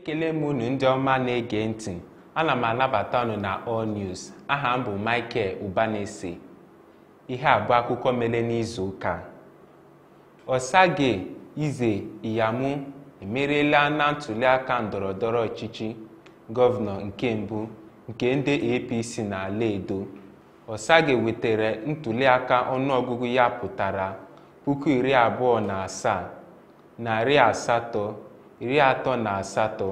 ekele m unu ndị ọma na-ege ntị ana m anabata unu na All News aha m bụ Michael Ubanese ihe abụọ akụkọ mere n'izu ụka Osage Ize Iyamu emeriela na ntuliaka ndọrọndọrọ ọchịchị gọvanọ nke mbụ nke ndị APC na-ala Edo Osage wetara ntuliaka ọnụọgụgụ ya pụtara puku iri abụọ na asaa narị asatọ iri atọ na asatọ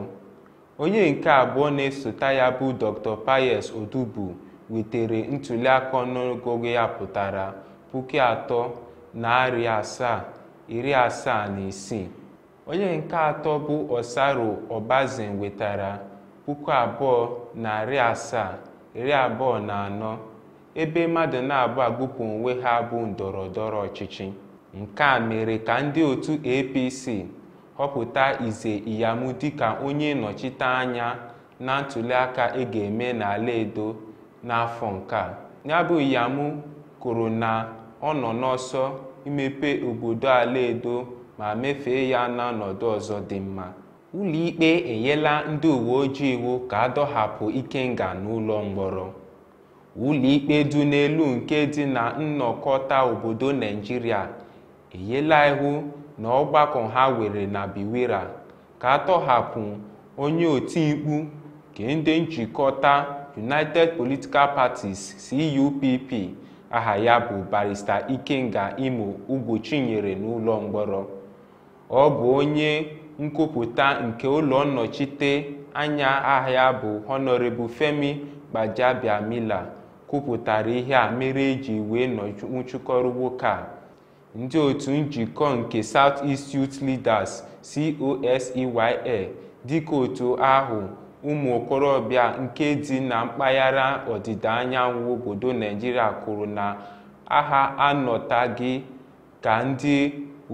onye nke abụọ na-esota ya bụ Dr. payes Odubu wetere ntuliaka ọnụọgụgụ ya pụtara puku atọ narị asaa iri asaa na isii onye nke atọ bụ Osaro obazin wetara puku abụọ narị asaa iri abụọ na anọ ebe mmadụ na-abụ agbụpụ onwe ha bụ ndọrọ ndọrọ ọchịchị nke a mere ka ndị otu APC họpụta Ize iyamu dịka onye nnọchiteanya na ntuliaka ị e ga-eme n'ala Edo n'afọ nke a. Ya bụ Iyam kwuru na ọ nọ n'ọsọ imepe obodo ala Edo ma mefee ya n'ọnọdụ ọzọ dị mma. Ụlọikpe enyela ndị uwe ojii iwu ka adọhapụ Ikenga n'ụlọ mkpọrọ. Ụlọikpe dị n'elu nke dị na nnọkọta obodo Naijiria enyela iwu na ọgbakọ ha were na Biwira ka a tọhapụ onye otimkpu ka ndị njikọta United Political Parties CUPP aha ya bụ barista Ikenga Imo Ugwuchinyere n'ụlọ mkpọrọ ọ bụ onye nkwupụta nke ụlọ nnọchite anya ahịa ya bụ Honorable Femi Gbajabiamila kwupụtara ihe a mere eji wee nwụchikọrọ nwoke a ndị otu njikọ nke South-East Youth Leaders COSEYL dịka otu ahụ ụmụ okorobịa nke dị na mpaghara ọdịda anyanwụ obodo Naijiria kwuru na agha anọtaghị ka ndị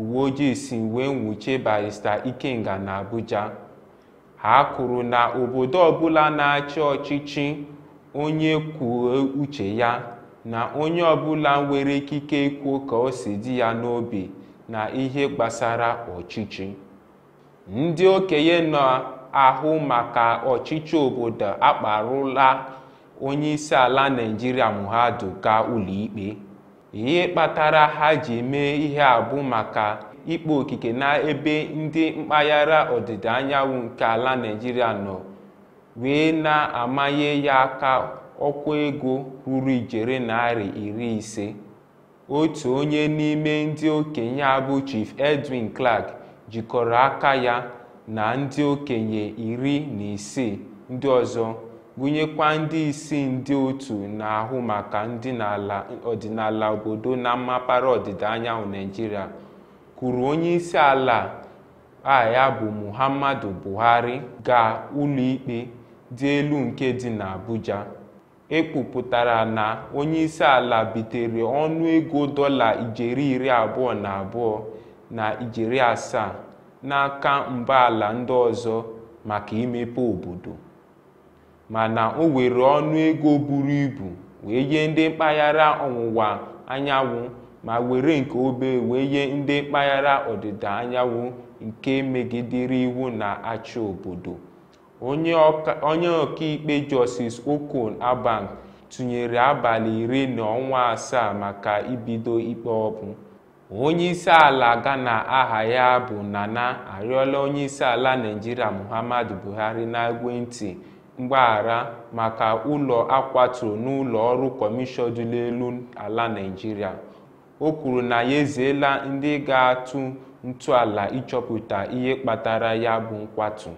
uwe ojii si wee nwuchie Barrister Ikenga na abuja ha kwuru na obodo ọbụla na-achị ọchịchị onye kwuo uche ya na onye ọbụla nwere ikike ikwu ka o si dị ya n'obi na ihe gbasara ọchịchị ndị okenye na-ahụ maka ọchịchị obodo akparụla onye isi ala naijiria ga gaa ụlọikpe ihe kpatara ha ji mee ihe abụ maka ikpe okike n'ebe ndị mpaghara ọdịda anyanwụ nke ala naijiria nọ wee na-amanye ya aka ọkwa ego ruru ijeri narị iri ise otu onye n'ime ndị okenye abụ Chief Edwin Clark jikọrọ aka ya na ndị okenye iri na isii ndị ọzọ gụnyekwa ndị isi ndị otu na-ahụ maka ndị ọdịnala obodo na mmapara ọdịda anyanwụ Naijiria, kwuru onye isi ala a ya bụ Muhammadu Buhari gaa ụlọikpe dị elu nke dị n'Abuja ekpupụtara na onye isi ala bitere ọnụego ego dọla ijeri iri abụọ na abụọ na ijeri asaa n'aka ala ndị ọzọ maka imepe obodo mana o were ọnụ ego buru ibu wee nye ndị mpaghara ọwụwa anyanwụ ma were nke obere wee nye ndị mpaghara ọdịda anyanwụ nke megidere iwu na-achị obodo onye ọkaikpe Justice Okon aban tụnyere abalị iri na ọnwa asaa maka ibido ikpe ọbụ ala Ghana aha ya bụ Nana arịọla ala naijiria Muhammadu Buhari na-egwentị mgbaghara maka ụlọ akwaturu n'ụlọ ọrụ kọmishọn dị n'elu ala naijiria o kwuru na ya ezeela ndị ga-atụ ntụala ịchọpụta ihe kpatara ya bụ nkwatu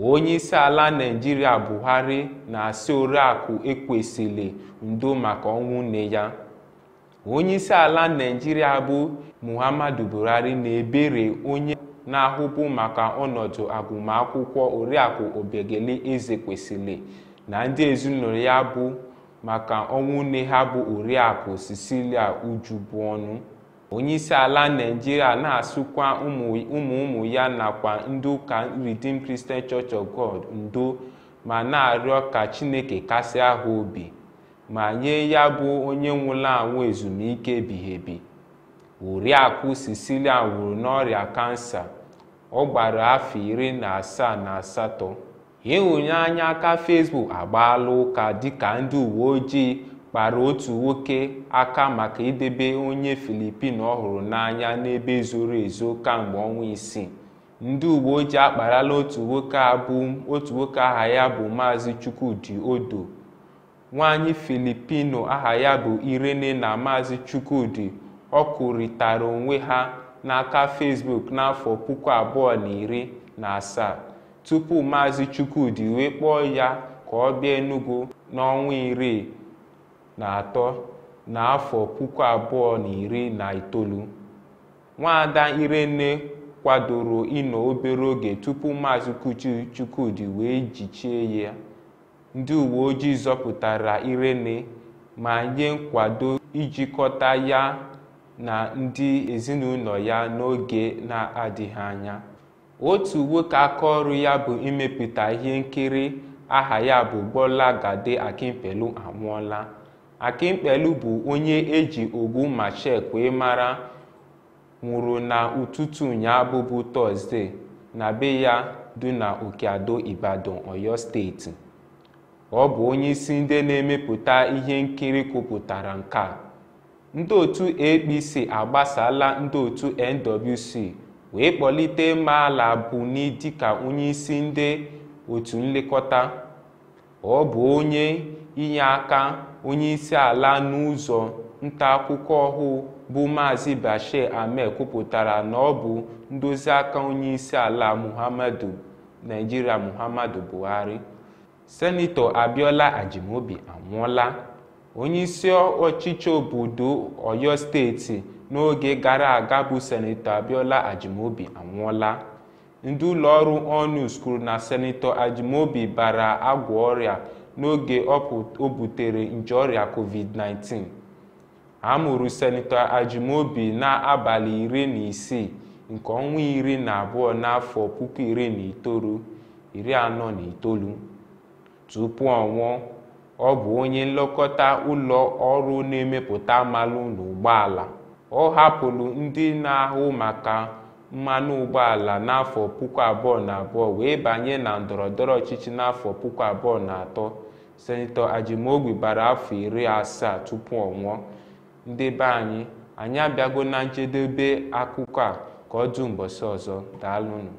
onye isi ala naijiria buhari na asi oriakụ ekwesịrị ndo maka ọnwụ nne ya onye isi ala naijiria bụ muhammadu buhari na-ebere onye na-ahụbu maka ọnọdụ agụmakwụkwọ oriakụ obegele eze kwesịrị na ndị ezinụlọ ya bụ maka ọnwụ nne ha bụ oriakụ cecilia ọnụ. onyeisi ala naijiria na-asụkwa ụmụ ụmụ ya nakwa ndị ụka Redeemed Christian Church of God ndo ma na-arịọ ka chineke kasị ahụ obi ma nye ya bụ onye nwụrụ anwụ ezumike ebighị ebi oriakụ sicilian nwụrụ n'ọrịa kansa ọ gbara afọ iri na asaa na asatọ ịhụnye aka Facebook agbaala ụka dịka ndị uwe ojii kpara otu nwoke aka maka idebe onye Filipin ọhụrụ hụrụ n'anya n'ebe zoro ezo kamgbe ọnwa isii ndị uwe ojii akparala otu nwoke abụ otu nwoke aha ya bụ Maazị Chukwudi Odo nwaanyị Filipino aha ya bụ Irene na Maazị Chukwudi ọkụrịtara onwe ha n'aka fesbuk n'afọ puku abụọ na iri na asaa tupu Maazị Chukwudi wee kpọọ ya ka ọ bịa Enugu n'ọnwa iri na atọ n'afọ puku abụọ na iri na itoolu nwada irene kwadoro ịnọ obere oge tupu maazị kuchi chukwudi wee jichie ya ndị uwe ojii zọpụtara irene ma nye nkwado ijikọta ya na ndị ezinụlọ ya n'oge na-adịghị anya otu nwoke aka ọrụ ya bụ imepụta ihe nkiri aha ya bụ gade akimpelu anwụọla akimkpelu bụ onye eji ogbu Machek wee mara nwụrụ na ụtụtụ ụnyaahụ bụ Tọzdee na be ya dị na Okeado Ibadan oyo steeti ọ bụ onyeisi ndị na-emepụta ihe nkiri kwupụtara nke a ndị otu APC agbasala ndị otu NWC wee kpọlite Maala Buni dịka onyeisi ndị otu nlekọta ọ bụ onye inye aka onye isi ala n'ụzọ nta akụkọ ọhụụ bụ Maazị Bashir Ahmed kwupụtara na ọ bụ ndozi aka onye isi ala Muhammadu Naijiria Muhammadu Buhari Senetọ Abiola Ajimobi anwụọla onye isi ọchịchị obodo Oyo steeti n'oge gara aga bụ Senetọ Abiola Ajimobi anwụọla ndị ụlọọrụ ONUS kwuru na Senetọ Ajimobi bara agwọ ọrịa n'oge o butere nje ọrịa covid-19 a mụrụ senetọ Ajimobi n'abalị iri na isii nke ọnwa iri na abụọ n'afọ puku iri na itoolu iri anọ na itoolu tupu ọ ọ bụ onye nlekọta ụlọ ọrụ na-emepụta mmanụ n'ụgbọala ọ hapụrụ ndị na-ahụ maka mmanụ ụgbọala n'afọ puku abụọ na abụọ wee banye na ndọrọ ndọrọ ọchịchị n'afọ puku abụọ na atọ senetọ Ajimogbi gbara afọ iri asaa tupu ọ nwụọ ndị be anyị anyị abịago na njedebe akụkọ a ka ọ dị mbọsị ọzọ daalụnụ